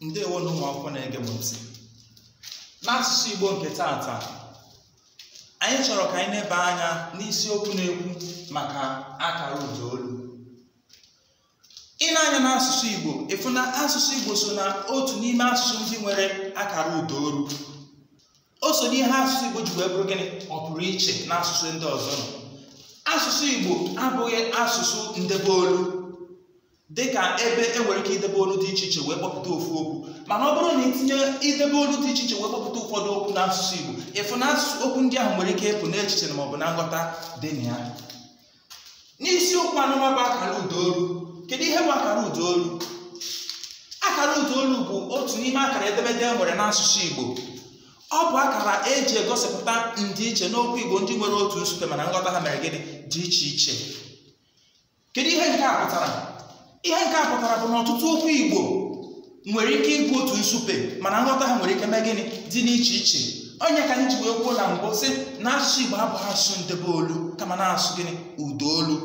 ndewo na ụmụ akwụkwọ na-ege m ntị n'asụsụ igbo nke tata anyị chọrọ ka anyị na-ebe anya n'isiokwu na-ekwu maka akara ụda olu ị na-anya n'asụsụ igbo ịfụ na asụsụ igbo so na otu n'ime asụsụ ndị nwere akara ụda olu o so n'ihe asụsụ igbo ji wee bụrụ gịnị ọ pụrụ iche n'asụsụ asụsụ ndị ọzọ nọ asụsụ igbo abụghị asụsụ ndebe olu dị ka ebe e nwere ike idebe olu dị iche iche wee kpọpụta ofu okwu mana ọ bụrụ na itinye idebe olu dị iche iche wee kpọpụta ụfọdụ okwu n'asụsụ Igbo ịfụ na asụsụ okwu ndị ahụ nwere ike ịpụ n'echiche ma ọ bụ na nghọta dị na ya n'isiokwu anụma bụ akara ụdaolu kedu ihe bụ akara ụdaolu akara udoolu bụ otu n'ime akara edemede e nwere n'asụsụ Igbo ọ bụ akara eji egosipụta ndịiche n'okwu Igbo ndị nwere otu nsupe mana nghọta ha mere gịnị dị iche iche kedu ihe nke a pụtara ihe nke a pụtara bụ na ọtụtụ okwu igbo nwere ike ịbụ otu nsupe mana nghọta ha nwere ike mee gịnị dị n'iche iche onye ka anyị ji wee kwuo na mbụ sị na asụsụ igbo abụghị asụsụ ndebe olu kama na-asụ gịnị ụdaolu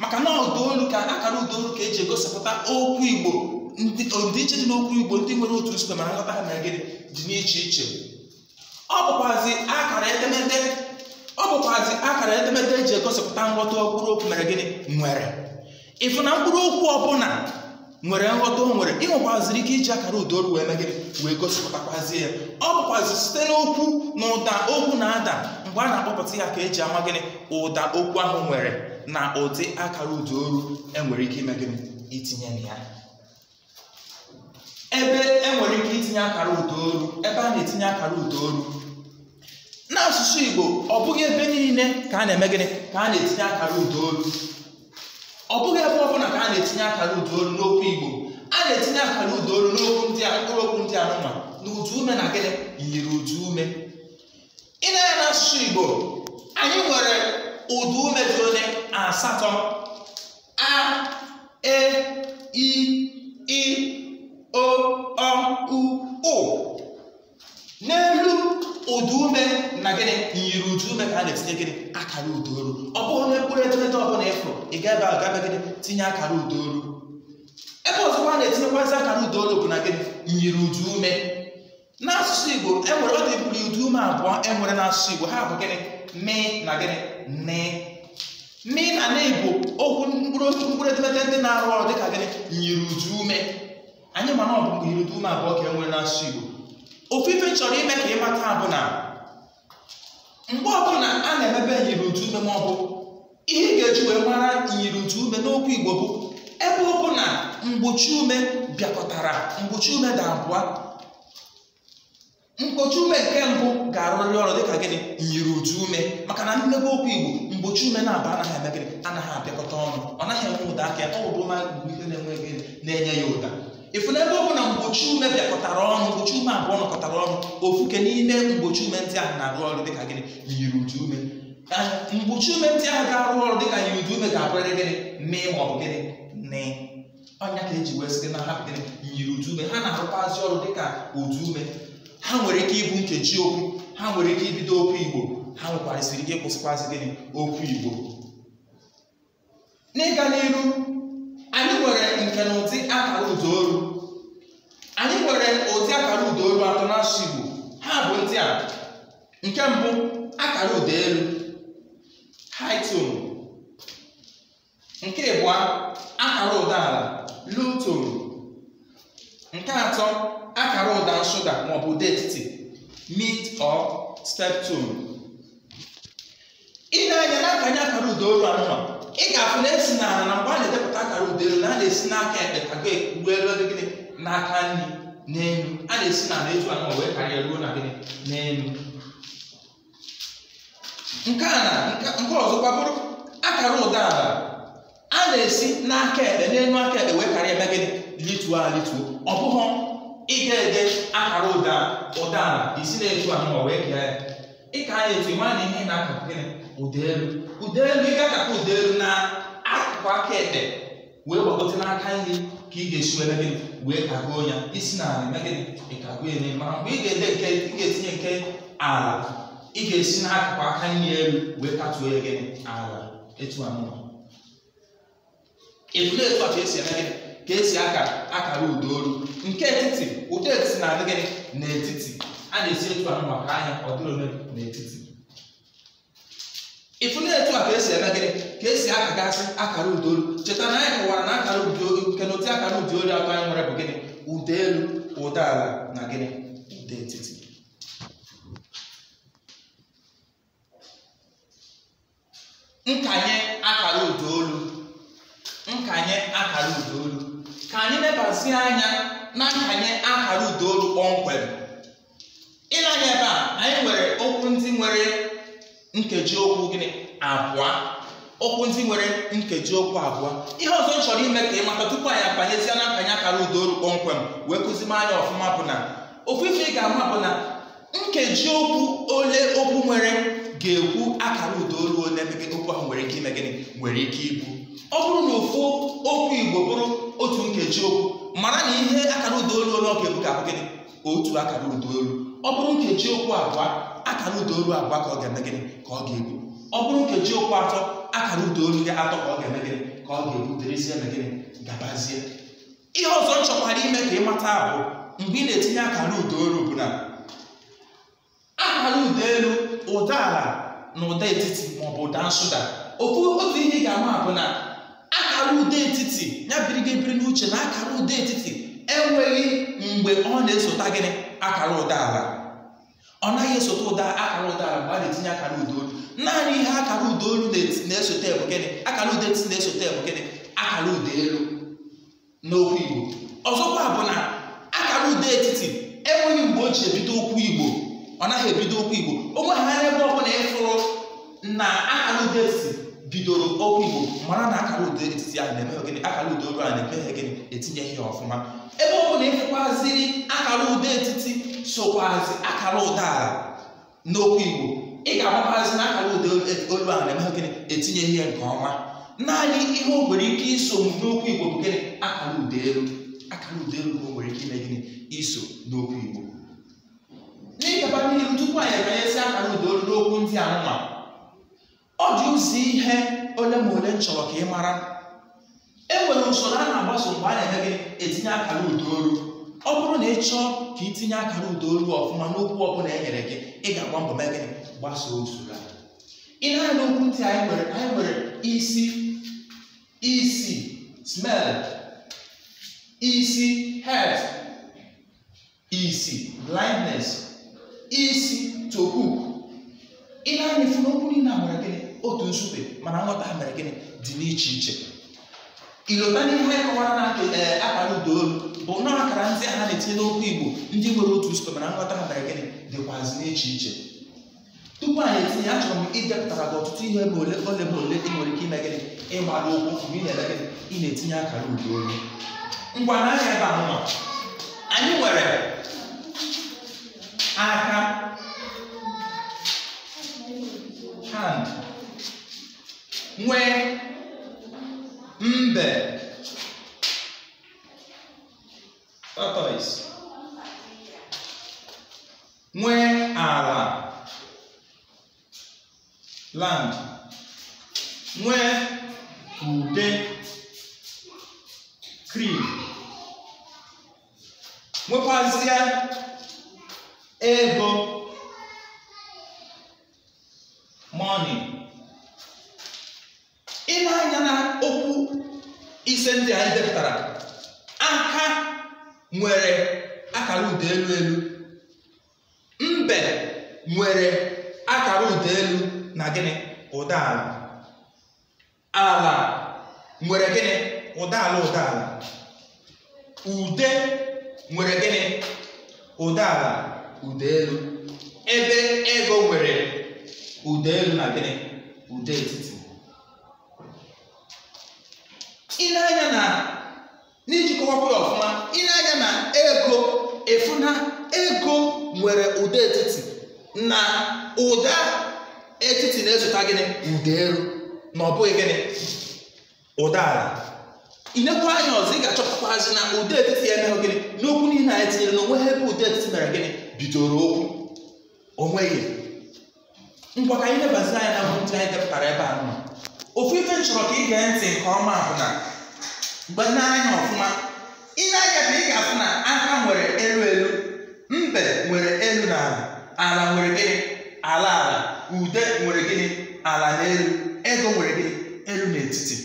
maka na ụdaolu ka akara ụdaolu ka eji egosipụta okwu igbo ndịiche dị n'okwu igbo ndị nwere otu nsupe mana nghọta ha mere gịnị dị n'iche iche ọ bụkwazi akara edemede ọ bụkwazi akara edemede eji egosipụta nghọta okpụrụ okwu mere gịnị nwere ịfụ na mkpụrụ okwu ọbụla nwere nghọta o nwere ịnwekwaziri ike iji akara udoru wee megị wee gosipụtakwazie ya ọ bụkwazi site n'okwu na ụda okwu na-ada mgbe a na-akpọpụta ya ka eji ama gịnị ụda okwu ahụ nwere na ụdị akara udaoru enwere ike ime gịnị itinye na ya ebe enwere ike itinye akara udaoru ebe a na-etinye akara udaoru n'asụsụ Igbo ọ bụghị ebe niile ka a na-eme gịnị ka a na-etinye akara udoru ọ bụghị ebe ọ ka a na-etinye akara ụda olu n'okwu igbo a na-etinye akara ụda olu n'okwu ndị a mkpụrụ okwu ndị anụma na ụda ume na gịnị yiri ụda ume ị na-anya n'asụsụ igbo anyị nwere ụda ume dị onye asatọ a e i i o ọ u ụ n'elu ụdị ume na gịnị nyiri ụdụ ume ka a na-etinye gịnị akara udo olu ọ bụrụ na mkpụrụ edemede ọbụla ịfụrụ ị ga ebe ahụ gịnị tinye akara udo olu ebe ọzọkwa a na-etinyekwazị akara udo olu bụ na gịnị nyiri ụdụ ume n'asụsụ Igbo enwere ọ dị mkpụrụ ụdụ ume abụọ enwere n'asụsụ Igbo ha bụ gịnị mi na gịnị ni mi na na Igbo okwu mkpụrụ edemede ndị na-arụ ọrụ dịka gịnị nyiri ụdụ ume anyị ma ọ bụ ume abụọ ka enwere n'asụsụ Igbo ofufe chọrọ ime ka ịmata abụ na mgbe ọbụla a na-emebe nyiri utu ume ma ọ bụ ihe ị ga-eji wee mara nyiri utu ume n'okwu igbo bụ ebe ụkwụ na mgbochi ume bịakọtara mgbochi ume dị abụọ mgbochi ume nke mbụ ga-arụrịrị ọrụ dịka gịnị nyiri utu ume maka na mmebe okwu igbo mgbochi ume na-abụ anaghị eme anaghị abịakọta ọnụ ọ naghị enwe ụda aka ọ bụ ma mgbe ihe na enweghị na-enye ya ụda ịfụna ebe ọ bụ na mgbochi ume bịakọtara ọnụ mgbochi ume abụọ nọkọtara ọnụ ofuke n'ime mgbochi ume ndị ahụ na-arụ ọrụ dịka gịnị yiri udu ume mgbochi ume ndị ahụ ga-arụ ọrụ dịka yiri udu ume ga-abụrịrị gịnị mee ma ọ bụ gịnị nị ọnya ka eji wee site na ha gịnị yiri udu ume ha na arụkwazị ọrụ dịka udu ume ha nwere ike ịbụ nkeji okwu ha nwere ike ibido okwu igbo ha nwekwarisịrị ike ịkwụsịkwazi gịnị okwu igbo n'ịga n'iru anyị nwere nke na ụdị akara ụdaolu anyị nwere ụdị akara olu atọ na shigbo ha bụ ndị a nke mbụ akara ụda elu high tone nke ịbụọ akara ụda ala low tone nke atọ akara ụda nsụda maọbụ ụda etiti mid or step tone ị na-anya n'akanye akara ụda olu anụmanụ ị ga-afụ na esi na na mgbe a na-edepụta akara udelu na a na-esi n'aka ekpe aga ekwu elu gịnị n'aka nri n'elu a na-esi na na etu anọ wee karịa ruo na gịnị n'elu nke a na nke ọzọ gbabụrụ akara ụda ala a na-esi n'aka ekpe n'elu aka ekpe wee karịa ebe gịnị lituo a lituo ọ bụghị ịga ede akara ụda ụda ala isi na-etu anọ wee kee ya ịka a etu ma na ihe na-akụ gịnị ụda elu ude elu ị ka akata ude elu na akụkụ aka ekpe wee gbagote n'aka nri ka ị ga-esi were gịnị wee kagoo ya isi n'ala eme gịnị ịkagoo ya mara mgbe ị ga-ede nke ị ga-etinye nke ala ị ga-esi n'akụkụ aka nri elu wee katuo ya gị ala etu a mụọ ịtụle etu a ka esi eme gịnị ka esi aka akara ụda olu nke etiti ụda etiti na-adị gịnị n'etiti a na-esi etu a mụ maka ahịa ọ dịrị n'etiti ịfụla etu a ka esi eme gịnị ka esi akagasị akara ụda olu cheta na anyị kọwara na akara ụda olu nke na ụdị akara ụda olu atọ anyị nwere bụ gịnị ụda elu ụda ala na gịnị ụda etiti nkanye akara ụda olu nkanye akara ụda olu ka anyị lebazie anya na nkanye akara ụda olu kpọmkwem ịlanye ebe a anyị nwere okwu ndị nwere nkeji okwu gịnị abụọ okwu ndị nwere nkeji okwu abụọ ihe ọzọ m chọrọ ime ka ị mata tupu anyị abanyezie na akanye akara udaolu kpọmkwem wee kụzima anya ọfụma bụ na ofu ife ị ga-ama bụ na nkeji okwu ole okwu nwere ga-ekwu akara udaolu ole ebe okwu ahụ nwere ike ime gịnị nwere ike ibu ọ bụrụ na ofu okwu igbo bụrụ otu nkeji okwu mara na ihe akara udaolu ole ọ ga-ebu ga-abụ gịnị otu akara udaolu ọ bụrụ nkeji okwu abụọ akara ụda olu abụọ ka ọ ga-eme gịnị ka ọ ga-ebu ọ bụrụ nkeji okwu atọ akara ụda olu gị atọ ka ọ ga-eme gịnị ka ọ ga-ebuterezie na gịnị gabazie ihe ọzọ m chọkwara ime ka mata bụ mgbe ị na-etinye akara ụda olu bụ na akara ụda elu ụda ala na ụda etiti maọbụ ụda nsụda ofu otu ihe ga-ama bụ na akara ụda etiti ya biri ebiri n'uche na akara ụda etiti enweghị mgbe ọ na esota gịnị akara ụda ala ọ naghị esote ụda akara ụda mgbe a na-etinye akara ụda olu naanị ihe akara ụda olu na-esote bụ gịnị akara ụda etiti na-esote bụ gịnị akara ụda elu n'okwu igbo ọzọkwa bụ na akara ụda etiti enweghị mgbe o ji ebido okwu igbo ọ naghị ebido okwu igbo onwe ha ebe ọ bụla ịfụrụ na akara ụda etiti bidoro okwu igbo mara na akara ụda etiti ahụ na-emeghe gịnị akara ụda olu ahụ na-emeghe gịnị etinye ya ọfụma ebe ọbụla ịfụkwaziri akara ụda etiti sokwazi akara ụdaala n'okwu igbo ị ga-amakwazi na akara ụda olu ahụ na-eme gịnị etinye ihe nke ọma naanị ihe o nwere ike iso n'okwu igbo bụ gịnị akara ụda elu akara ụda elu o nwere ike ime gịnị iso n'okwu igbo n'ịgaba n'ihu tupu anyị emanyezi akara ụda olu n'okwu ndị anụma ọ dị ụzọ ihe ole ma ole m chọrọ ka ị mara e nwere usoro a na-agbaso mgbe a na-eme gịnị etinye akara ụda olu ọ bụrụ na ị chọọ ka ị tinye aka n'udo ruo ọfụma n'okwu ọbụla e nyere gị ị ga-agba mbọ mee gịnị gbasoo usoro a ị na n'okwu ntị anyị nwere anyị nwere isi isi smell isi head isi blindness isi to hook ị na-anya efu n'okwu niile a nwere gịnị otu nzube mana nghọta ha mere gịnị dị n'iche iche ilota n'ihe kọwara na eh, akara ụda olu bụ na akara ndị a na-etinye n'okwu igbo ndị nwere otu usoro mana nghọta ha mere gịnị dịkwazị n'iche iche tupu anyị etinye achọrọ m ịdepụtara gị ọtụtụ ihe bụ ole ole bụ ole ị nwere ike ime gịnị ịgbara ụkwụ mgbe ị na-eme gịnị ị na-etinye akara ụdị olu ngwa n'ahịa ebe ahụ nọ anyị nwere aka hand nwee mbe Tortoise. Nwee ala. Land. Nwee ude. Cream. nwekwazie ego money ile anya na okwu ise ndị a edepụtara nwere akara ụda elu elu mbe nwere akara ụda elu na gịnị ụda ala ala nwere gịnị ụda ala ụda ala ude nwere gịnị ụda ala ụda elu ebe ego nwere ụda elu na gịnị ụda etiti ile anya na n'iji kọwapụ ya ọfụma ile na ego efuna ego nwere ụda etiti na ụda etiti na-ezụta gịnị ụda elu na ọ bụghị gịnị ụda ala inekwa anya ọzọ ị ga azụ na ụda etiti ya emeghị gịnị n'okwu niile anyị tinyere na onwe ha ebe ụda etiti mere gịnị bidoro okwu onwe onweghị ngwa ka anyị lebazi anya na ndị anyị depụtara ebe a nọ ofu ife chọrọ ka ị gee ntị nke ọma bụ na mgbe nne anya ọfụma ihe na-anya bụ ị ga-afụ na aka nwere elu elu mbe nwere elu na ala ala nwere gịnị ala ala ude nwere gịnị ala na elu ego nwere gịnị elu n'etiti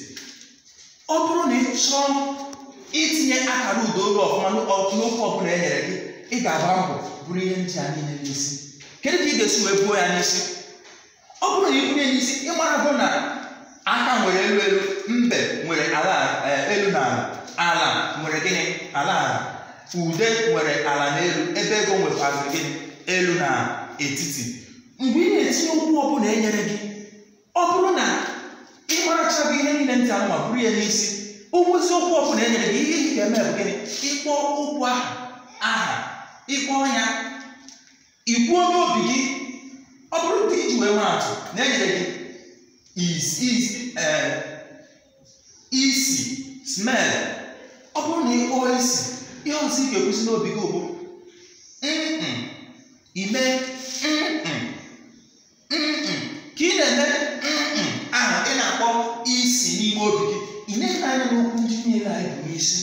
ọ bụrụ na ị chọọ itinye akara ude olu ọfụma n'okwu ọbụla e nyere gị ị ga-agba mbọ bụrụ ihe ndị a niile n'isi kedu ka ị ga-esi wee buo ya n'isi ọ bụrụ na ị bunye n'isi ị mara bụ na aka nwere elu elu mbe nwere ala eh, elu na ala ala nwere gịnị ala ala ude nwere ala n'elu ebe ego nwekwazị gịnị elu na etiti mgbe ị na-etinye okwu ọbụla enyere gị ọ bụrụ na ị marachaghị ihe niile ntị anụma bụrụ ya n'isi ụgwụzi okwu ọbụla enyere gị ihe ị ga-eme bụ gịnị ịkpọ okwu ahụ aha ịkpọ ya ikwuo n'obi gị ọ bụrụ na iji wee atụ na enyere gị isi eh, smell ọ bụrụ na ịkpụwa isi ihe ọzọ ị ga-ekwusi n'obi gị bụ ime ka ị na-eme ahụ ị na-akpọ isi n'ime obi gị ị na-ele anya n'okwu ndị niile anyị bụ isi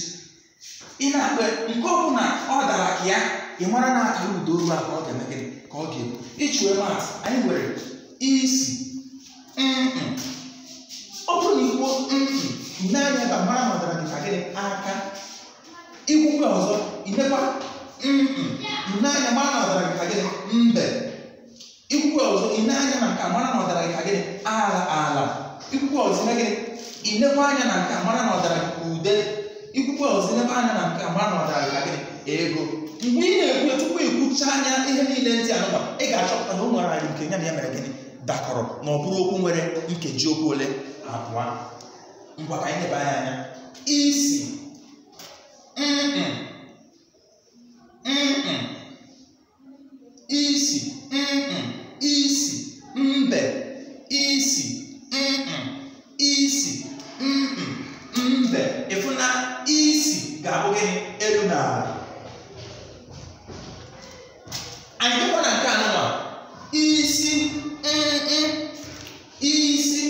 ị na-akpa nke ọ bụla ọ dara ka ya ị mara na akara ụda olu a ka ọ ga-eme gịnị ka ọ ga-ebu ịchụwe maatụ anyị nwere isi ọ bụrụ na ikwu ne anya ka mara ma ọ gị ka gịnị aka ikwukwe ọzọ imekwa nne anya mara na ọ gị ka gịnị mbe ikwukwe ọzọ ine anya na nka mara na ọ gị ka gịnị ala ala ikwukwe ọzọ ime gịnị inekwa anya na nka mara na ọ ka ude ikwukwe ọzọ inekwa anya na nka mara na ọ gị ka gịnị ego mgbe ị na-ekwu tupu ikwucha anya ihe niile ndị anụba ị ga-achọpụta na o nwere anyị nke nya na ya mere gịnị dakọrọ na ọ bụrụ okwu nwere nkeji okwu ole abụọ ngwa ka anyị leba anya anya isi mm isi mm isi mbe isi mm isi mbe ịfụ na isi ga-abụ gịnị elu na ala anyị dịkwa na nke anụnwa isi isi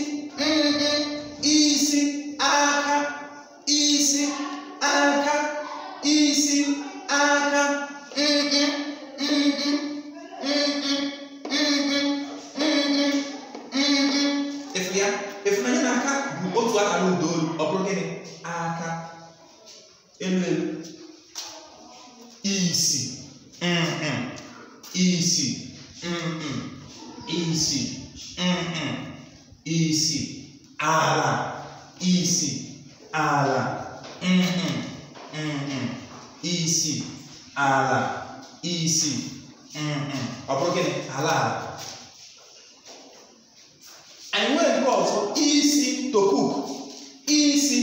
isi aka, isi, aka, isi, aka, mm-mm, mm-mm, mm-mm, mm-mm, mm-mm, mm-mm. aka bụ otu aka n'udoru, ọ bụrụ gịnị? Aka, elu elu, isi, mm-mm, isi, mm-mm, isi, mm-mm, isi, ala. isi ala mm mm isi ala isi ọ bụrụ gịnị ala ala anyị nwere nke ọzọ isi tokuk isi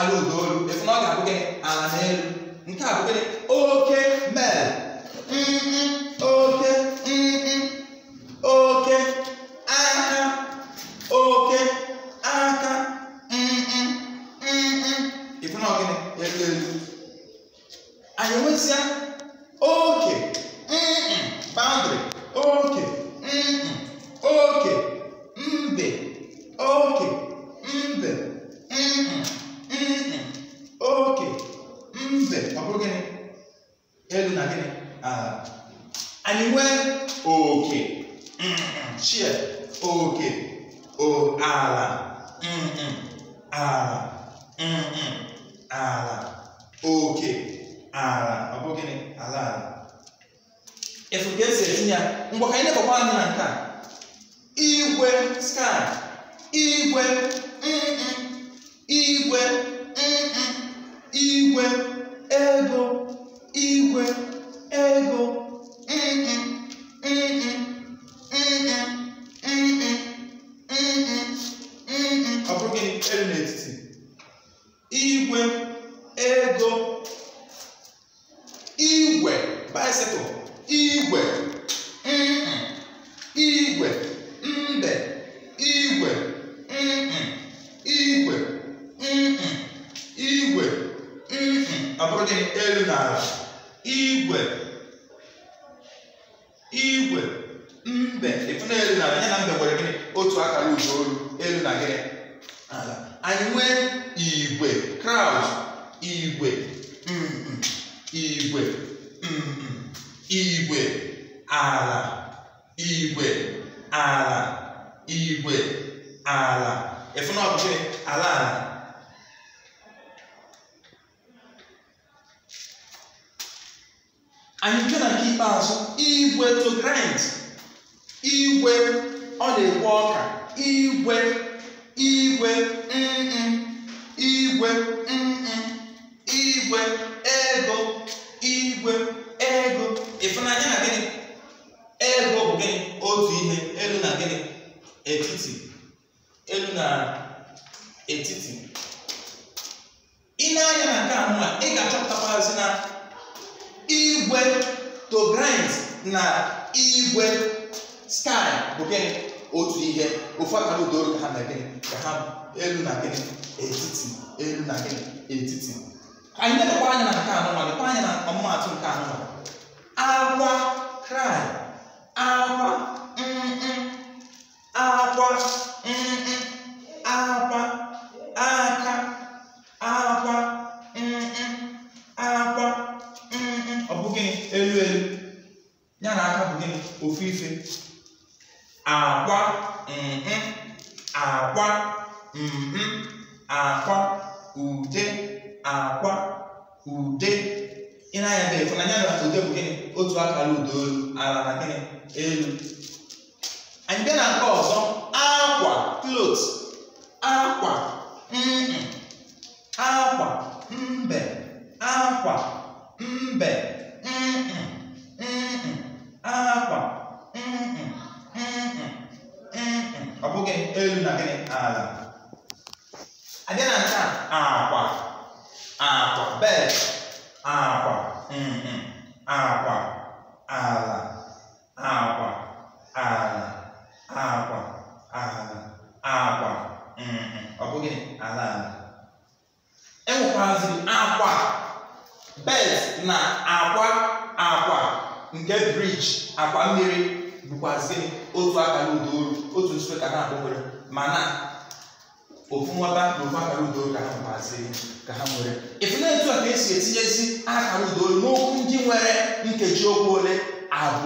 aghala udaolu efu na ọ ga-abụ ala n'elu nke a bụ gịnị oke mel onye elu na ala igwe igwe mbe ịfụna elu na ala ya na mbe nwere gịnị otu akara uju olu elu na gịnị ala anyị nwee igwe kraud igwe igwe igwe ala igwe ala igwe ala ịfụna ọbụchị ala ala anyị nke na nke ikpeazụ igwe to grind igwe ọ na-ekwe ọka igwe igwe mm igwe mm igwe ego igwe ego ịfụnanya na gịnị ego bụ gịnị otu ihe elu na gịnị etiti elu na etiti ị na-anya na nke a ị ga-achọpụtakwazi na igwe to grind na igwe sky bụ gịnị otu ihe ofu aka udo ka ha na gịnị ka ha elu na gịnị etiti elu na gịnị etiti anyị na-elekwa anya na nke anọ nwanyị kwa anya na ọmụmaatụ nke anọ agwa cry agwa mm agwa.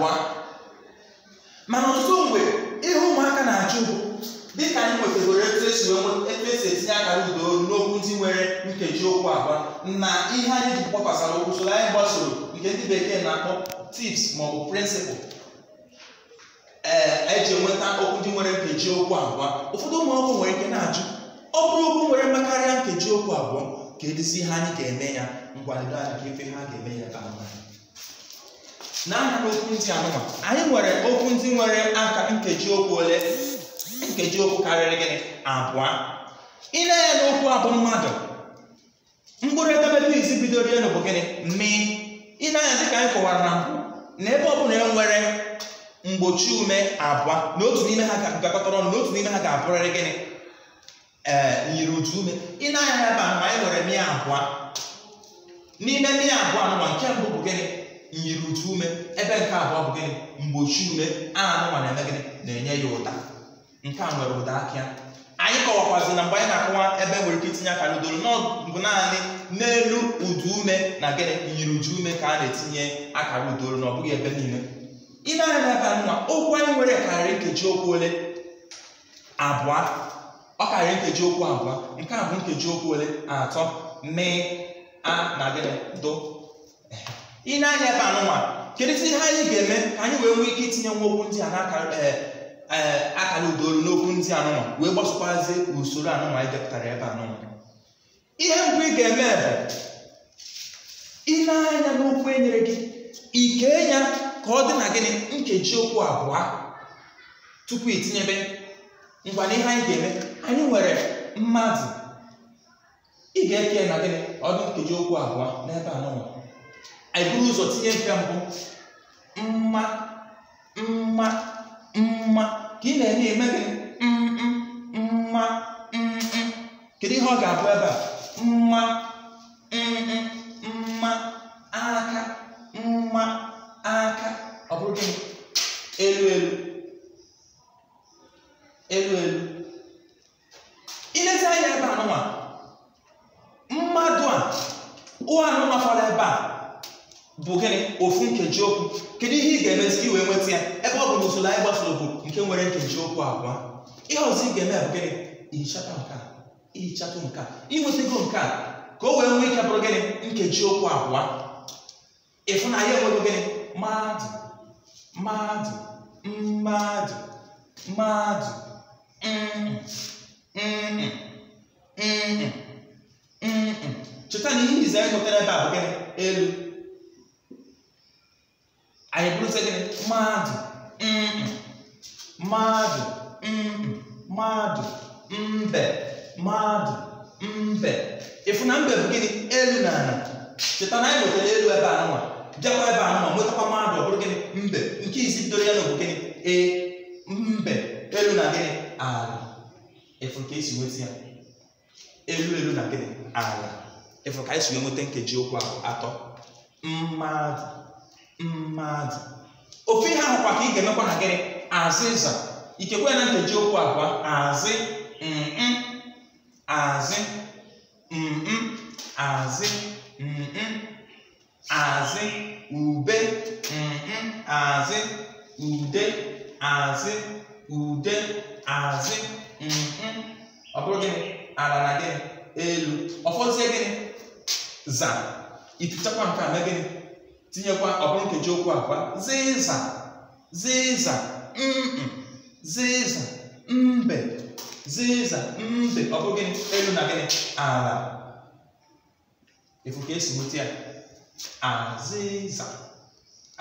abụọ mana ọtụtụ mgbe ihe ụmụaka na-achụ bụ dịka anyị nwetagoro etu esi e etinye aka udo n'okwu ndị nwere nkeji okwu abụọ na ihe anyị ji kpọkwasara okwu soro anyị gbasoro nke ndị bekee na-akpọ tips bụ prịnsịpụl ee eji enweta okwu ndị nwere nkeji okwu abụọ ụfọdụ ụmụakwụkwọ nwere ike na-ajụ ọ bụrụ okwu nwere mmekarịa nkeji okwu abụọ ka edizi ihe anyị ga-eme ya ngwa anyị ka ife ha ga-eme ya ka mma na-anya n'okwu ndị anụwa anyị nwere okwu ndị nwere aka nkeji okwu ole nkeji okwu karịrị gịnị abụọ ile ya n'okwu abụ mmadụ mkpụrụ edemede izi bidoro elu bụ gịnị mi ile anya dịka anyị kọwara na na ebe ọ bụla enwere mgbochi ume abụọ na otu n'ime ha gakọtara ọnụ na otu n'ime ha ga-abụrịrị gịnị ee nyiri otu ume ile anya ebe a ma anyị nwere mi abụọ n'ime mi abụọ anụwa nke mbụ bụ gịnị nyiri uju ume ebe nke abụọ bụ gịnị mgbochi ume a na-anụnwa na-eme gịnị na-enye ya ụda nke a nwere ụda akịa anyị kọwakwazi na mgbe anyị na-akụwa ebe nwere ike itinye aka n'udoro bụ naanị n'elu udu ume na gịnị nyiri uju ume ka a na-etinye akara udoro na ọ bụghị ebe niile ị na-anya ebe nwa okwu anyị nwere karịrị nkeji okwu ole abụọ ọ karịrị nkeji okwu abụọ nke a bụ nkeji okwu ole atọ mee a na gịnị do ị na-anya ebe anụnwa kedu ihe anyị ga-eme ka anyị wee nwee ike itinye nwa okwu ndị a n'aka e, e, akara udaolu n'okwu ndị anụnwa wee gbasokwazi usoro anụnwa anyị depụtara ebe anụnwa ihe mbụ ị ga-eme bụ ị na-anya n'okwu e nyere gị ike ya ka ọ dị na gịnị nkeji okwu abụọ tupu itinyebe ngwa na ihe anyị ga-eme anyị nwere mmadụ ị ga-eke na gịnị ọdụ nkeji okwu abụọ n'ebe anụnwa eburu ụzọ tinye nke mbụ mma mma mma ka ị na-enye eme gị mma mm, mm. mma kedu ihe ọ ga-abụ ebe a mma nkeji okwu kedu ihe ị ga-eme site iwee nweta ya ebe ọ bụ na usoro anyị gbasoro bụ nke nwere nkeji okwu abụọ ihe ọzọ ị ga-eme bụ gịnị ihichata nke a ihichata nke a inwetago nke ka o wee nwee ike bụrụ gịnị nkeji okwu abụọ ịfụnanya enwego gịnị mmadụ mmadụ mmadụ mmadụ mm, mm, mm, cheta na ihe ize nwetara ebe a bụ gịnị elu anyị bụrụzie gịnị mmadụ mmadụ mmadụ mbe mmadụ mbe ịfụ na mbe bụ gịnị elu na ala cheta na anyị nwetara elu ebe a nwa, bịakwa ebe a nwa, nwetakwa mmadụ ọ bụrụ gịnị mbe nke isi bidoro ya na bụ gịnị ee mbe elu na gịnị ala ịfụ ka esi nweta ya elu elu na gịnị ala ịfụ ka anyị si nweta nkeji okwu atọ mmadụ mmadụ ofe ihe ahụkwa ka ị ga-emekwa na gịnị azịza ikekwe na nkeji okwu abụọ azị mm azị mm azị mm azị ube mm azị ude azị ude azị mm ọ bụrụ gịnị ala na gịnị elu ọfọzie gịnị za itichakwa nke a mee gịnị tinyekwa ọ bụrụ nkeji okwu akwa zịza zịza zịza mbe zịza mbe ọ bụ gịnị elu na gịnị ala efu ka esi nweta ya azịza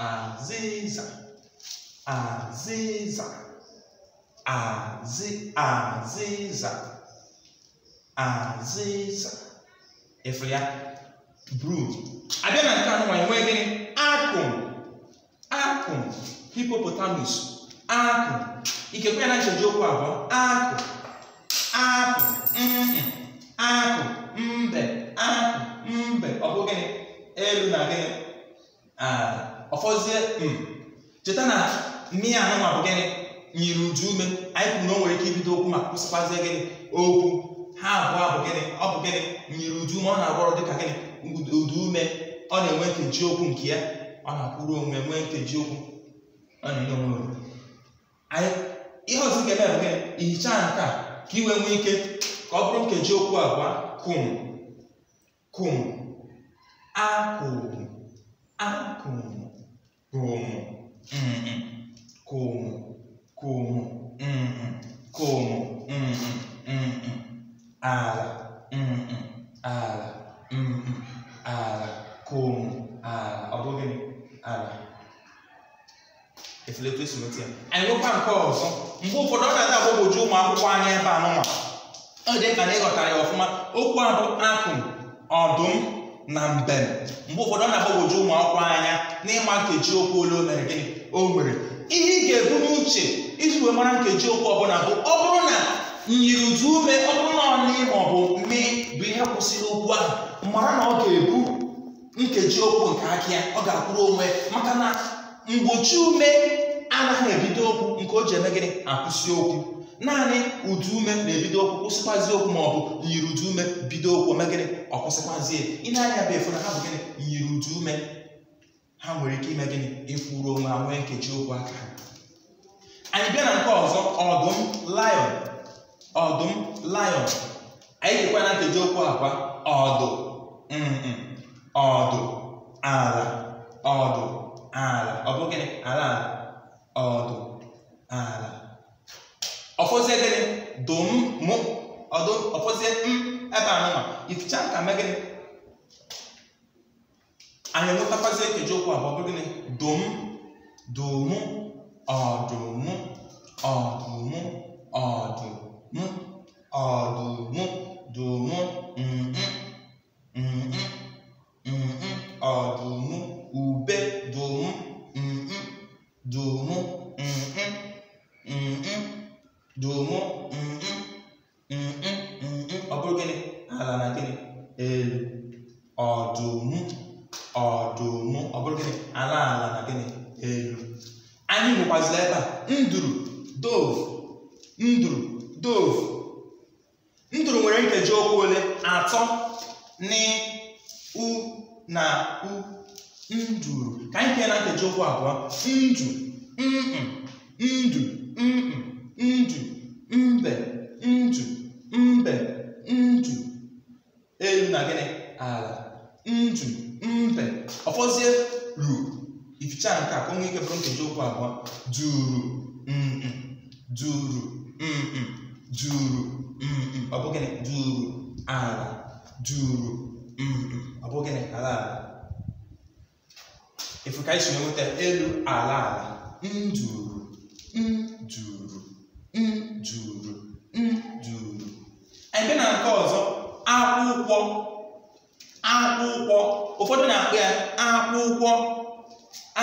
azịza azịza azị azịza azịza efu ya bru abịa na nke anụnwa enwee gịnị akụ akụ hipopotamus akụ ikekwe ya na ncheji okwu abụọ akụ akụ akụ mbe akụ mbe ọ bụ gịnị elu na gịnị ọfọzie mm. cheta na mmiri anụnwa bụ gịnị nyiri uju ume anyị kwuru na o nwere ike ibido okwu ma kwụsịkwazie gịnị okwu ha abụọ bụ gịnị ọ bụ gịnị nyiri uju ume ọ na-arụ ọrụ dịka gịnị ụda ume ọ na-enwe nkeji okwu nke ya ọ na-akwụrụ onwe nwee nkeji okwu ọ na-enye onwe anyị ihe ọzọ nke eme ihicha nka ka iwe nwee ike ka ọ bụrụ nkeji okwu abụọ kum kum akwụrụ ala ala ala kom ala ọ bụghị ala efelekwa esometu ya anyị nwekwa nke ọzọ mgbe ụfọdụ ọ na-ada agbagwoju ụmụ akwụkwọ anya ebe anụnwa ọ dị ka na ịghọtara ya ọfụma okwu abụ akụm ọdụm na mbem mgbe ụfọdụ ọ na-agbagwoju ụmụ akwụkwọ anya n'ịma nkeji okwu ole o mere gịnị o nwere ihe ị ga-ebu n'uche iji wee mara nkeji okwu ọbụla bụ ọ bụrụ na nyiri uju ume ọ bụrụ ma ọ bụ mme bụ ihe kwụsịrị okwu ahụ mara na ọ ga-ebu nkeji okwu nke aki ya ọ ga-akwụrụ onwe maka na mgbochi ume anaghị ebido okwu nke o ji eme gịnị akwụsị okwu naanị ụdị ume na-ebido okwu kwụsịkwazi okwu ma ọ bụ nyiri ụdị ume bido okwu ome gịnị ọ kwụsịkwazi ịna-anya bụ efu na ha bụ gịnị ụdị ume ha nwere ike ime gịnị ịfụrụ onwe ha nwee nkeji okwu aka anyị bịa na nke ọzọ ọdụm lion ọdụm lion anyị jikwa na nkeji okwu akwa ọdụ ọdụ ala ọdụ ala ọ bụ gịnị ala ala ọdụ ala ọfọzie gịnị dụm mụ ọdụ ọfọzie m ebe anụnwa ificha nka mee gịnị anyị enwetakwazie nkeji okwu abụọ bụ gịnị dụm dụmụ ọdụmụ ọdụmụ ọdụmụ mu ọ̀dùnmú dùnmú nǹn nǹn nǹn ọ̀dùnmú ùbe dùnmú nǹn dùnmú nǹn nǹn dùnmú nǹn nǹn nǹn ọ bụrụ gịnị ala na gịnị elu ọdụmụ ọdụmụ ọ bụrụ gịnị ala ala na gịnị elu anyị nwekwazila ebe a nduru dove nduru dove nduru nwere nkeji okwu ole atọ ni u na u nduru ka anyị kee na nkeji okwu abụọ ndu ndu ndu mbe ndu mbe ndu elu na gịnị ala ndu mbe ọfọzie ru ificha nke a ka ike bụrụ nkeji okwu abụọ duru duru mm juru mm, mm ọ bụ gịnị juru ala juru mm, mm. ọ bụ gịnị ala ala efu ka anyị si nweta elu ala ala njuru mm, njuru njuru njuru anyị bịa na nke ọzọ akwụkwọ akwụkwọ ụfọdụ na-akpọ ya akwụkwọ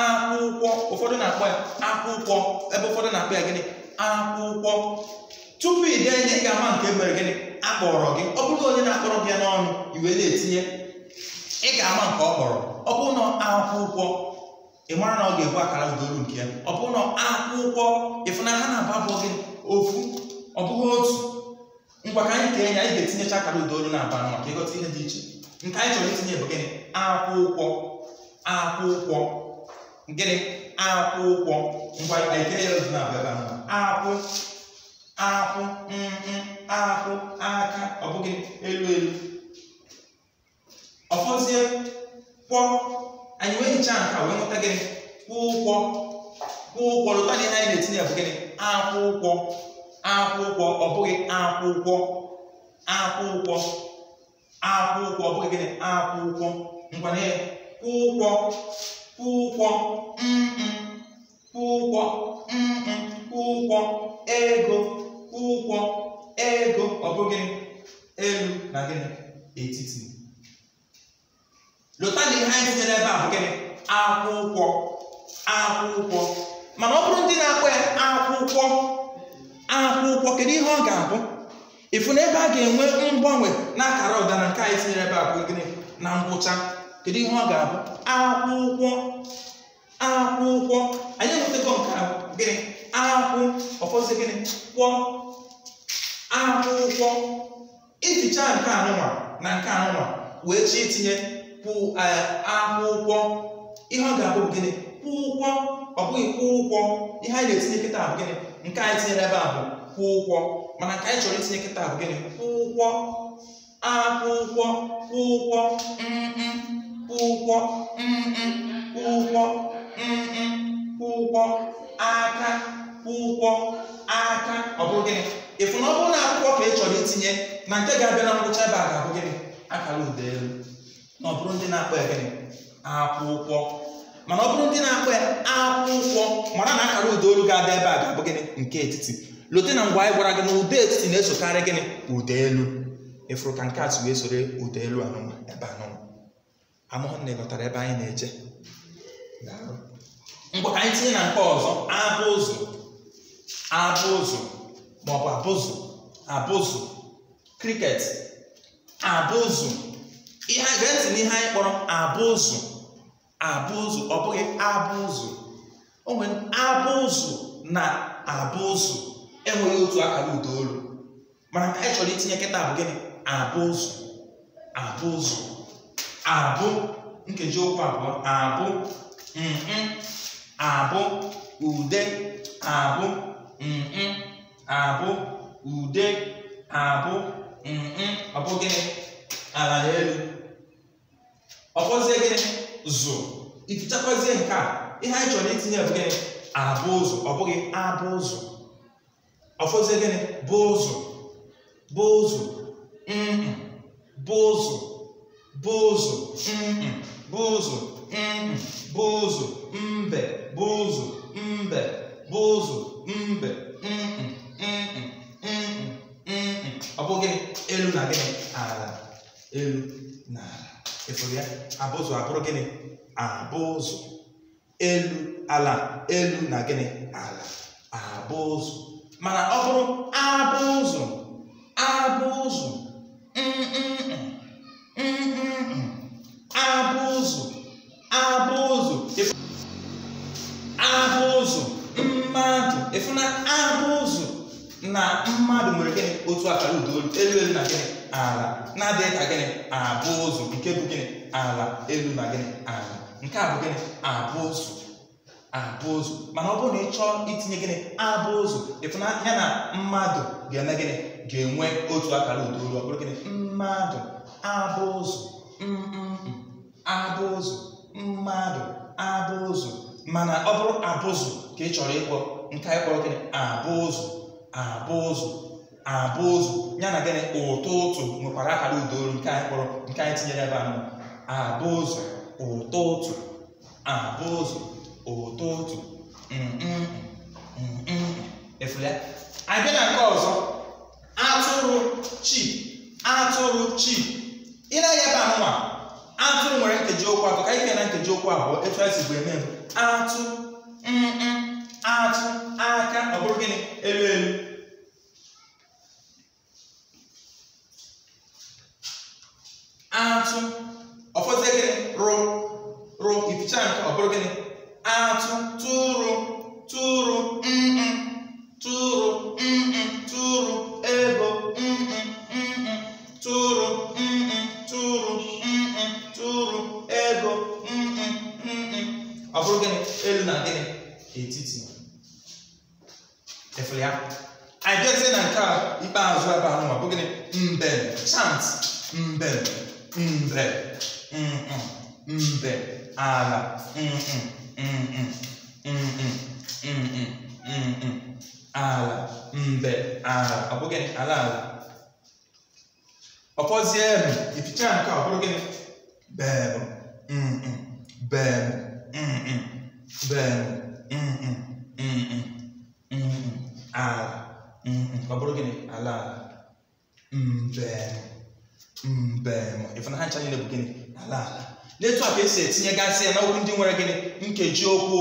akwụkwọ ụfọdụ na-akpọ ya akwụkwọ ebe ụfọdụ na-akpọ ya gịnị akwụkwọ tupu ị dee ihe ị ga-ama nke mere gịnị akpọrọ gị ọ bụrụ onye na-akpọrọ gị n'ọnụ iwe na-etinye ị ga-ama nke ọ kpọrọ ọ bụrụ na akwụkwọ ị mara na ọ ga-ebu akara udolu nke ya ọ bụrụ na akwụkwọ ịfụna ha na-abụ bụ gị ofu ọ bụghị otu ngwa ka anyị kee ya anyị ga-etinyecha akara udolu na aba ka ịghọta ihe dị iche nke anyị chọrọ itinye bụ gịnị akwụkwọ akwụkwọ gịnị akwụkwọ ngwa anyị kee ya ozu na abịa akwụ akwụ mkpụ mm, mm, akwụ aka ọ bụghị elu elu ọfọzie kwọ anyị wee hichaa nke wee nweta gịnị kwụ ụgwọ kwụ ụgwọ lụta ihe anyị na-etinye bụ gịnị akwụ ụgwọ akwụ ụgwọ ọ bụghị akwụ ụgwọ akwụ ụgwọ akwụ ụgwọ ọ bụghị gịnị akwụ ụgwọ nkwanye. kwụ ụgwọ kwụ ụgwọ mm, kwụ ụgwọ kwụ ụgwọ ego ụgwọ ego ọ bụghị elu na gịnị etiti lụta na ihe anyị tinyere ebe a bụ gịnị akwụkwọ akwụkwọ mana ọ bụrụ ndị na-akpọ ya akwụkwọ akwụkwọ kedu ihe ọ ga-abụ ịfụ na ebe a ga-enwe mgbanwe n'akara akara ụda na nke anyị tinyere ebe a bụ gịnị na ngwụcha kedu ihe ọ ga-abụ akwụkwọ akwụkwọ anyị enwetago nke gịnị akwụ ọfọzi gịnị kwọ akwụkwọ ificha nke anụnwa na nke anụnwa wee chi itinye kwụ e, akwụkwọ ihe ọ ga-abụ gịnị kwụ ụgwọ ọ bụghị kwụ ụgwọ ihe anyị na-etinye kịta bụ gịnị nke anyị tinyere ebe a kwụ ụgwọ mana nke anyị chọrọ itinye kịta bụ gịnị kwụ ụgwọ akwụkwọ kwụ ụgwọ kwụ ụgwọ kwụ ụgwọ kwụ ụgwọ aka kwụ ụgwọ aka ọ bụrụ gịnị chọrọ itinye na nke ga-abịa na ngwụcha ebe a ga-abụ gịnị akara ụda elu na ọ bụrụ ndị na-akpọ ya gịnị akwụkwọ mana ọ bụrụ ndị na-akpọ ya akwụkwọ mara na akara ụda olu ga-abịa ebe a ga-abụ gịnị nke etiti lote na ngwa anyị gwara gị na ụda etiti na-esokarị gịnị ụda elu ịfụrụ ka nke atụ wee soro ụda elu anụnwa ebe anụnwa amụhụ na ịghọtara ebe anyị na-eje ngwa ka anyị tinye na nke ọzọ abụzụ abụzụ maọbụ abụzụ abụzụ kriket abụzụ ihe gee ntị n'ihe anyị kpọrọ abụzụ abụzụ ọ bụghị abụzụ o nwere abụzụ na abụzụ enweghị otu akara ụda olu mana anyị chọrọ itinye nkịta bụ gịnị abụzụ abụzụ abụ nkeji okwu abụọ abụ abụ ude abụ abụ ude abụ ọ bụ gịnị ala elu ọkpọzie gịnị zụ ifichakwazie nke a ihe anyị chọrọ itinye bụ gịnị abụ ụzụ ọ bụghị abụ ụzụ ọfọzie gịnị bụ ụzụ bụ ụzụ bụ ụzụ bụ ụzụ bụ ụzụ bụ ụzụ mbe bụ ụzụ mbe bụ ụzụ mbe elu na ala ịfụrụ ya abụzụ abụrụ gịnị abụzụ elu ala elu na gịnị ala abụzụ mana ọ bụrụ abụzụ abụzụ abụzụ abụzụ abụzụ mmadụ ịfụna abụzụ na mmadụ nwere gịnị otu akara udo elu elu na gịnị ala na-adịghị ka gịnị abụ ụzọ nke bụ gịnị ala elu na gịnị ala nke a bụ gịnị abụ ụzọ abụ ụzọ mana ọ bụrụ na ị chọọ itinye gịnị abụ ụzọ ịfụna ya na mmadụ ga-eme gịnị ga-enwe otu akara ụda olu ọ bụrụ gịnị mmadụ abụ ụzọ abụ ụzọ mmadụ abụ ụzọ mana ọ bụrụ abụzụ ka ị chọrọ ịkpọ nke anyị kpọrọ gịnị abụ ụzọ abụ ụzọ abụ ụzụ ya na gịnị ụtọ ụtụ nwekwara akara udaolu nke anyị kpọrọ nke anyị tinyere ebe anọ abụ ụzụ ụtọ ụtụ abụ ụzụ ụtọ ụtụ efulia abịa na nke ọzọ atụrụ chi atụrụ chi ịnaghị ebe anụnwa atụrụ nwere nkeji okwu atọ ka ike na nkeji okwu abụọ etu esi bụ eme atụ atụ aka ọ bụrụ gịnị elu elu atụ ọfọdụ gịnị rụ rụ ificha nke ọ bụrụ gịnị atụ tụrụ tụrụ mm tụrụ mm tụrụ ego mm tụrụ mm tụrụ mm tụrụ ego mm ọ bụrụ gịnị elu na gịnị etiti efere ya anyị jezie na nke a ikpeazụ ebe ahụ ma bụ gịnị mbem chant mbem mbre, mbe, ala, ala, mbe, ala. Ọ bụ gịnị? Ala ala. Ọ fọzie ebe, ificha nke ọ bụrụ gịnị? Beem, beem, beem, ala. Ọ bụrụ gịnị? Ala ala. Mbe. mbem ịfụnanya na-ebu gịnị ala ala n'etu a ka esi etinye gasị ya n'okwu ndị nwere gịnị nkeji okwu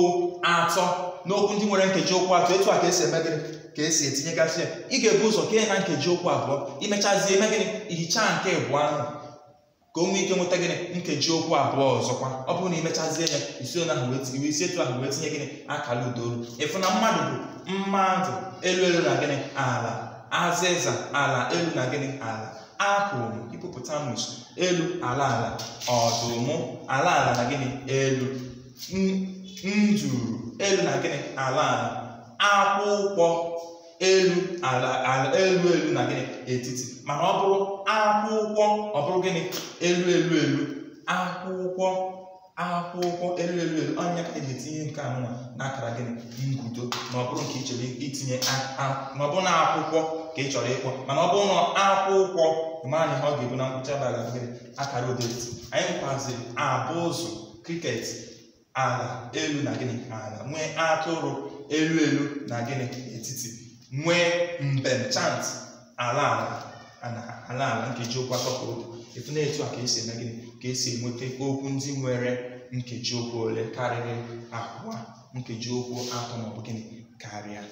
atọ n'okwu ndị nwere nkeji okwu atọ etu a ka esi eme gịnị ka esi etinye gasị ya ị ga-ebu ụzọ kee na nkeji okwu abụọ imechazie eme gịnị ihicha nke ịbụ ahụ ka o nwee ike nweta gịnị nkeji okwu abụọ ọzọkwa ọ bụrụ na imechazie ya isi etu ahụ wee tinye gịnị akara udaolu ịfụ na mmadụ bụ mmadụ elu elu na gịnị ala azịza ala elu na gịnị ala m apụl hipopotamus elu ala ala ọdụm ala ala na gịnị elu njuru elu na gịnị ala ala akwụkwọ elu ala ala elu elu na gịnị etiti mana ọ bụrụ akwụkwọ ọ bụrụ gịnị elu elu elu akwụkwọ akwụkwọ elu elu elu onye ka eji etinye nke anụnwa na akara gịnị ngudo ma ọ bụrụ nke ichere itinye ma ọ bụ na akwụkwọ ka ị chọrọ ịkpọ mana ọ bụrụ na akwụ ụkwọ ma na ihe ọ ga-ebu na ngwụcha abalị gịnị akara odet anyị kwaziri abụ ụzọ kriket ala elu na gịnị ala nwee atụrụ elu elu na gịnị etiti nwee mbem chant ala ala ala ala nkeji atọ ka etu na etu a ka esi eme gịnị ka esi enweta okwu ndị nwere nkeji ụkwụ ole karịrị abụọ nkeji okwu atọ maọbụ gịnị karịa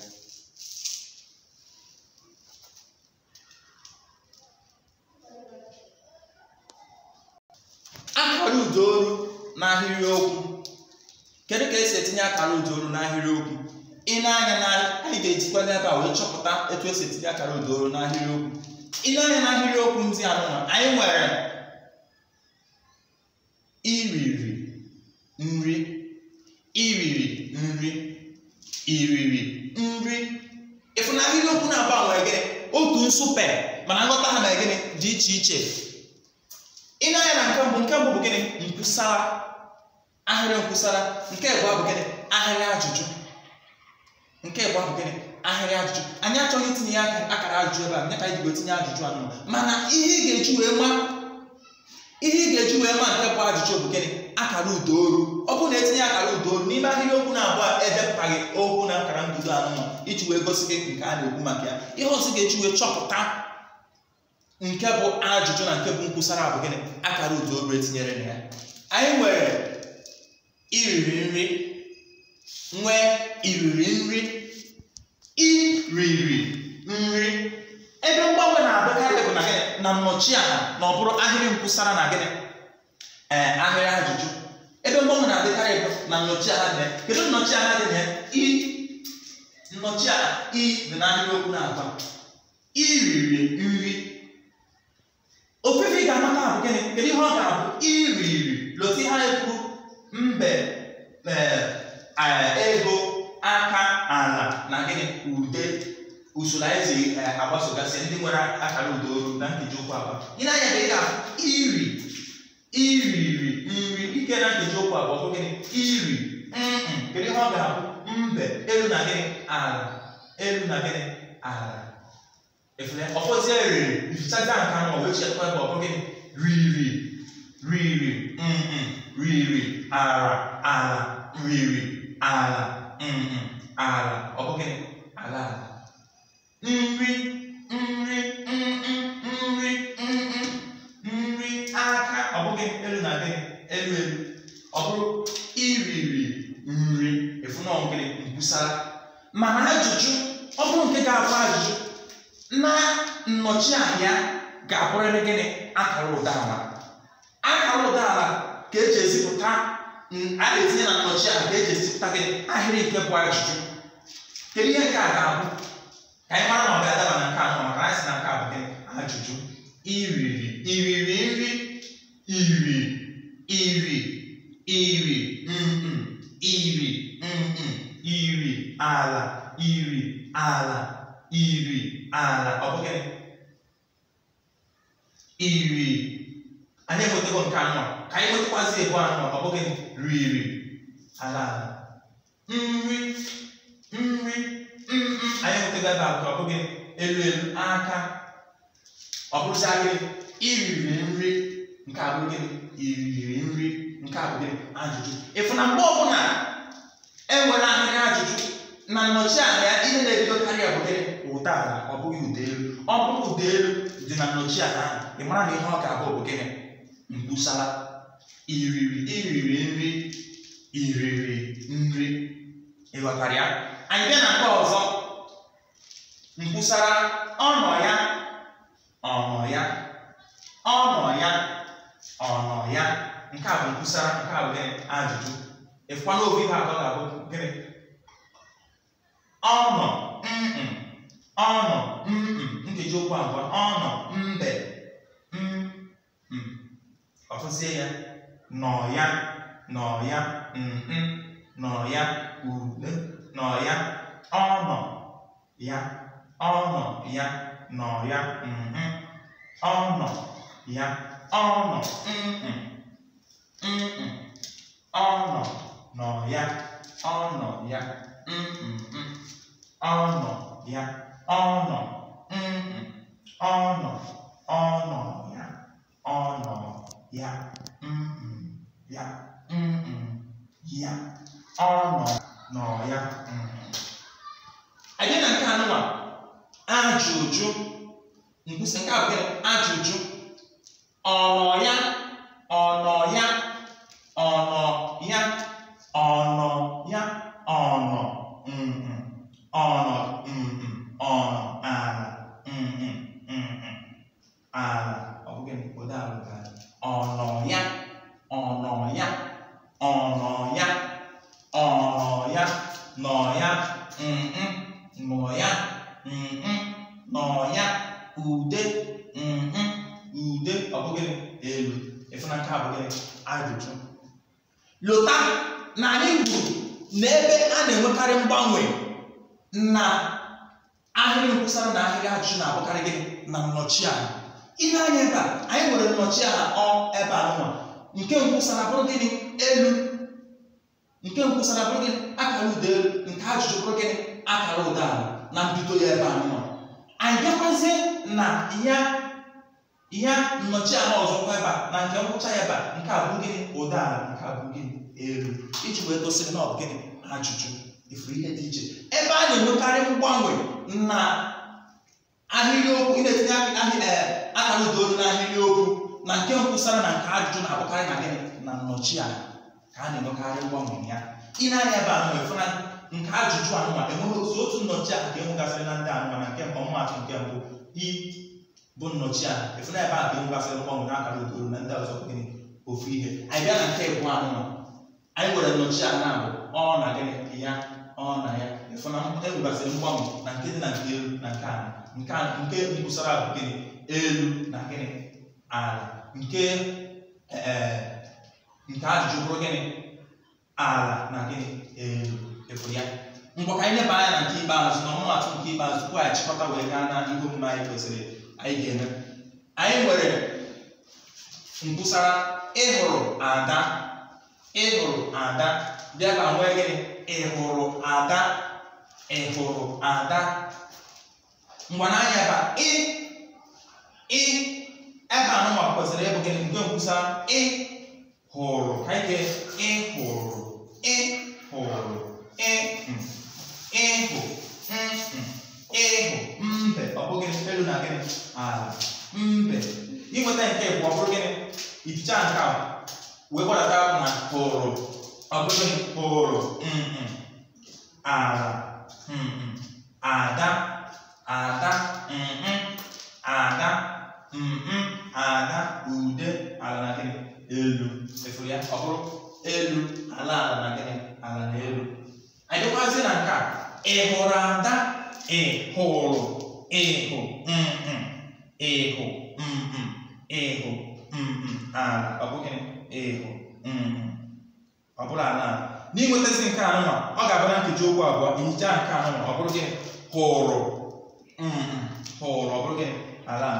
akara udo oru n'ahịrịokwu kedu ka esi etinye akara udo oru n'ahịrịokwu ị na-anya na anyị ga-ejikwa n'ebe a wee chọpụta etu esi etinye akara udo oru n'ahịrịokwu ị na-anya n'ahịrịokwu ndị anụnwa anyị nwere iriri nri iriri nri iriri nri ịfụ na ahịrịokwu na-agbanwe gị otu nsupe mana nghọta ha na gịnị dị iche iche ị na-anya na nke mbụ nke mbụ bụ gịnị nkwusara ahịrị nkwusara nke ịbụọ bụ gịnị ahịrị ajụjụ nke ịbụọ bụ gịnị ahịrị ajụjụ anyị achọghị itinye ya akara ajụjụ ebe a nye ka anyị tinye ajụjụ anụ mana ihe ị ga-eji wee ma ihe ị ga-eji wee ma nke bụ ajụjụ bụ gịnị akara ụdaolu ọ bụrụ na etinye akara ụdaolu n'ime ahịrịokwu na-abụọ edepụtaghị okwu na akara mbido anụnụ iji wee gosi gị nke a na-ekwu maka ya ihe ọzọ ga-eji wee chọpụta nke bụ ajụjụ na nke bụ nkwụsara bụ gịnị akara ụda obere etinyere na ya anyị nwere iriri nri nwee iriri nri iriri nri ebe mgbanwe na-abụkarị bụ na gịnị na nnọchi aha na ọ bụrụ ahịrị nkwụsara na gịnị ee ahịrị ajụjụ ebe mgbanwe na-adịkarị bụ na nnọchi aha dị kedu nnọchi aha dị na i nnọchi aha i dị na ahịrị okwu na-agba iriri nri ofefe ị ga-amata abụ gịnị kedu ihe ọ ga-abụ iri loti ha ekwu mbe eh, eh, ego aka ala na gịnị ude usoro anyị si eh, agbasogasị ndị nwere akara ude olu na nkeji okwu abụọ gịnị anya ka ị ga-abụ iri iriri nri ike na nkeji okwu abụọ bụ gịnị iri kedu ihe ọ ga-abụ mbe elu na gịnị ala elu na gịnị ala efule ọfọzie riri ifichazi nka na ọwee chekwa ebe ọbụ gị riri riri mm riri ara ala riri ala mm ala ọ bụ gị ala ala nri nri nri nri nri aka ọ bụ elu na gị elu elu ọ iriri nri efu na ọ gịnị nkwusara mana ajụjụ ọ bụrụ nke ga-abụ ajụjụ na nnọchi ahịa ga-abụrịrị gịnị akara ụdala akara ụdala ka eji ezipụta mm, a ga etinye na nnọchi nnọchianya ka eji ezipụta gịnị ahịrị nke bụ ajụjụ kedu ihe nke a ga-abụ ka anyị mara na ọ ga-adaba na nke anọ maka anyị si na nke a bụ gịnị ajụjụ iriri iriri nri iri iri iri mm iri mm iri ala iri ala iri ala ọ bụghị iri anyị enwetago nke anọ ka anyị nwetakwazị ebu anọ ọ bụghị riri ala ala nri nri nri anyị enwetago ebe abụọ ọ bụghị elu elu aka ọ bụrụzarị iriri nri nke abụghị iriri nri nke abụghị ajụjụ ịfụ na mgbe ọbụla enwere ahịrị ajụjụ na nnọchi anya ihe na-ebidokarị ya bụ gịnị ụda ala ọ bụghị ụda elu ọ bụrụ ụda elu dị na nnọchi ala ahụ ị mara na ihe ọ ga-abụ bụ gịnị mgbusala iriri iriri nri iriri nri ịghọtara ya anyị bịa na nke ọzọ mgbusala ọnọ ya ọnọ ya ọnọ ya ọnọ ya nke a bụ mgbusala nke a bụ ajụjụ ịfụkwana ofe ihe atọ ga-abụ gịnị ọ nọ mm ọ nọ mm nkeji okwu abụọ ọ nọ mbe mm ọtụzie ya nọ ya nọ ya mm nọ ya ule nọ ya ọ nọ ya ọ nọ ya nọ ya mm ọ nọ ya ọ nọ mm mm ọ nọ nọ ya ọ nọ ya mm mm ọnọ ya ọnọ mm ọnọ ọnọ ya ọnọ ya mm ya mm ya ọnọ nọ ya anyị na nke anụwa ajụjụ nkwusi nke abụghị ajụjụ ọnọ ya ahịrịokwu ị na-etinye eh, akara udaolu na n'ahịrịokwu na nke nkwụsara na nke ajụjụ na-abụkarị na gị na nnọchi a ka a na-enwekarị mgbanwe ya ị na-anya ebe ahụ efu na nke ajụjụ anụma enweghị otu otu nnọchi a ka enwegasịrị na ndị anụma na nke mbụ mmaatụ nke mbụ i bụ nnọchi a efu na ebe a ka enwegasịrị mgbanwe na akara udaolu na ndị ọzọ gịnị ofu ihe anyị bịa na nke ịbụ anụma anyị nwere nnọchi a na-abụ ọ na gịnị ya ọ na ya efu enwegasịrị mgbanwe na nke dị na nke elu na nke ala nke nkwụsara bụ gịnị elu na gịnị ala nke e, e, nke ajụjụ bụrụ gịnị ala na gịnị elu efu ya Mgbe ka anyị leba anya na nke ikpeazụ na ọmụmatụ nke ikpeazụ tupu ya chịkọta wee gaa na ihe omume anyị kwesịrị anyị ga-eme anyị nwere nkwụsara ịhụrụ ada ịhụrụ ada bịa ka nwee gịnị ịhụrụ ada ịhụrụ ada ngwana anya ba ị ị ebe anụ ma kwesịrị ịbụ gịnị nke nkwusa ị hụrụ ka ike ị hụrụ ị hụrụ ị ịhụ hmm. ịhụ hmm, hmm. mbe ọ bụ gịnị elu na gịnị ala mbe inweta nke bụ ọ bụrụ gịnị ificha nke a wee gbadata na hụrụ ọ bụrụ gịnị hụrụ ala ada ada mh ada mh ada ude ala na gịnị elu efuru eh, ya ọ bụrụ elu ala ala na gịnị ala na elu anyị dịkwazi na nke a ị hụrụ ada ị hụrụ ịhụ mh ịhụ mh ịhụ mh ala ọ bụ gịnị ịhụ mh ọ bụrụ ala ala n'inwetazi nke anụnwa ọ ga-abụ na nkeji okwu abụọ ihicha nke anụnwa ọ bụrụ gịnị hụrụ hụrụ bụrụ gị ala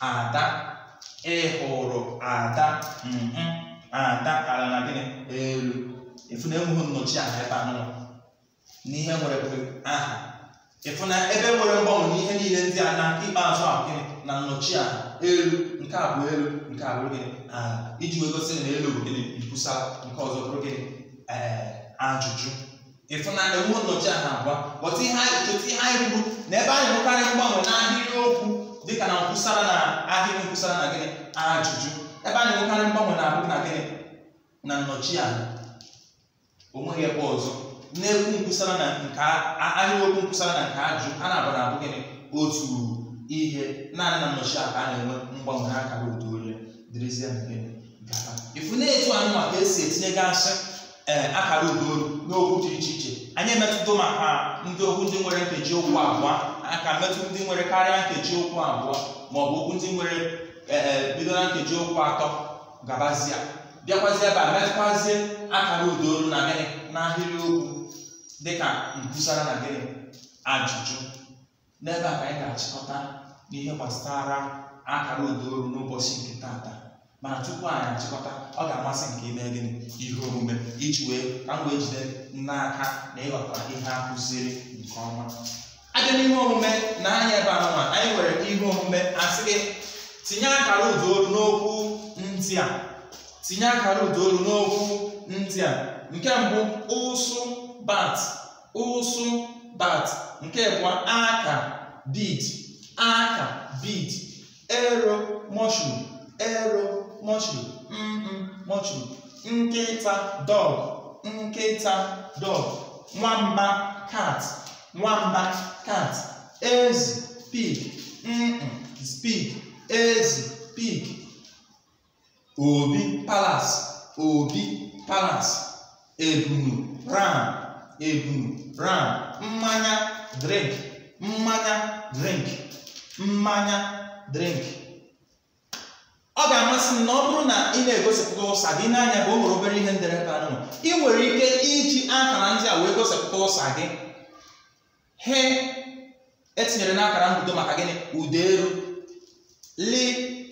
ada ịhụrụ e ada ada ala na gịnị elu efu na enweghị nnọchi aha ebe anụ n'ihe nwere bụ aha ịfụ na ebe nwere mgbanwe n'ihe niile ndị a na ikpeazụ ahụ gịnị na nnọchi aha elu nke a bụ elu nke a bụrụ gịnị ala iji wee gosi na elu bụ gịnị nkwusa nke ọzọ bụrụ gịnị ee eh, ajụjụ ịfụnanya nwe nnọchi a na-agwa ghọta ihe anyị cheta ihe anyị kwuru na ebe anyị hụkarị mgbanwe na ahịrịokwu dịka na nkwụsara na ahịrị nkwụsara na gịnị ajụjụ ebe anyị hụkarị mgbanwe na-abụ na gịnị na nnọchi a nweghị ebe ọzọ na-ekwu nkwụsara na nke ahịrịokwu nkwụsara na nke ajụjụ a na-abụ na-abụ gịnị otu ihe naanị na nnọchi a ka a na-enwe mgbanwe na akara otu onye dịrịzie nke gaba ịfụ na etu anụ maka esi etinye gasị ee eh, akara udo n'okwu dị iche iche anyị emetụta maka ndị okwu ndị nwere nkeji okwu abụọ aka metụta ndị nwere karịa nkeji okwu abụọ ma ọ bụ okwu ndị nwere e, e, bido na nkeji okwu atọ gabazia bịakwazie ebe a metụkwazie akara udaolu na gịnị na ahịrị okwu dịka nkwusara na gịnị ajụjụ n'ebe a ka anyị ga-achịkọta n'ihe gbasara akara udaolu n'ụbọchị nke taata mana tupu anyị achịkọta ọ ga-amasị nke ime gịnị ihe omume iji wee ka m wee jide n'aka na ịghọta ihe a kụziri nke ọma abịa n'ihe omume na anya ebe anụma anyị nwere ihe omume asị gị tinye akara ụdaolu n'okwu ndị a tinye akara ụdaolu n'okwu ndị a nke mbụ ụsụ bat ụsụ bat nke bụ aka bid aka bid ero mushroom ero mm mm, mọchụ nkịta dog, nkịta dog. nwamba cat, nwamba cat. ezi pig mm mm, pig ezi pig obi palace, obi palace. ebunu ram ebunu ram mmanya drink mmanya drink mmanya drink ọ ga-amasị m na ọ bụrụ na ị na-egosipụta ụsa gị n'anya bụ o nwere obere ihe ndere ebe anụ ị nwere ike iji akara ndị a wee gosipụta ụsa gị he etinyere n'akara mbido e maka gịnị ụda elu li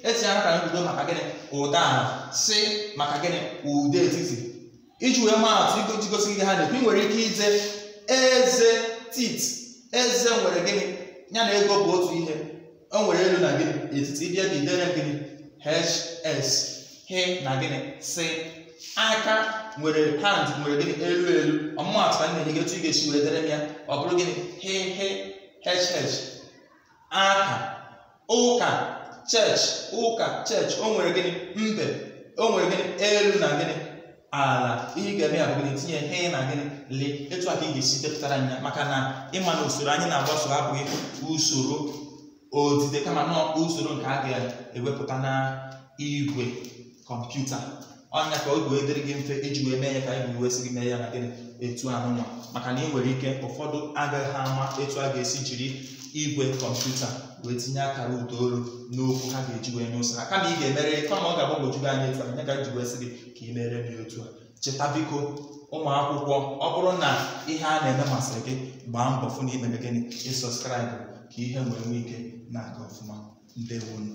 etinyere akara mbido maka gịnị ụda ala si maka gịnị ụda etiti iji wee maa atụ iji gosi gị ha na-ekwu ị nwere ike ije eze tit eze nwere gịnị ya na ego bụ otu ihe o nwere elu na gịnị etiti ịbịa bidere gịnị hs h na gịnị si aka nwere hand nwere gịnị elu elu ọmụmaatụ ka m na-enye gị otu ị ga-esi were dere m ya ọ bụrụ gịnị h h hh aka ụka church ụka church o nwere gịnị mbe o nwere gịnị elu na gịnị ala ihe ga-eme ya bụ gịnị tinye he na gịnị lee etu a ka ị ga-esi depụtara m ya maka na ịma na usoro anyị na-agbaso abụghị usoro odide kama na usoro nke a ga-ewepụta na igwe kọmputa ọnya ka oge wee dịrị gị mfe iji wee mee ya ka anyị wee gị mee ya na gịnị etu anụnwa maka na ị nwere ike ụfọdụ agaghị ama etu a ga-esi jiri igwe kọmputa wee tinye akara ụdaolu n'okwu ha ga-eji wee nye ha kama ị ga-emere kama ọ ga-agbagwoju gị anya etu a anya ka iji wee gị ka ị mere m otu a cheta biko ụmụ akwụkwọ ọ bụrụ na ihe a na-eme masịrị gị gbaa mbọ fụ na imere gịnị ịsọskraịbụ ka ihe nwere nwee ike na-aga ọfụma ndewonụ